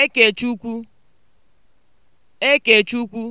Ekechukwu Ekechukwu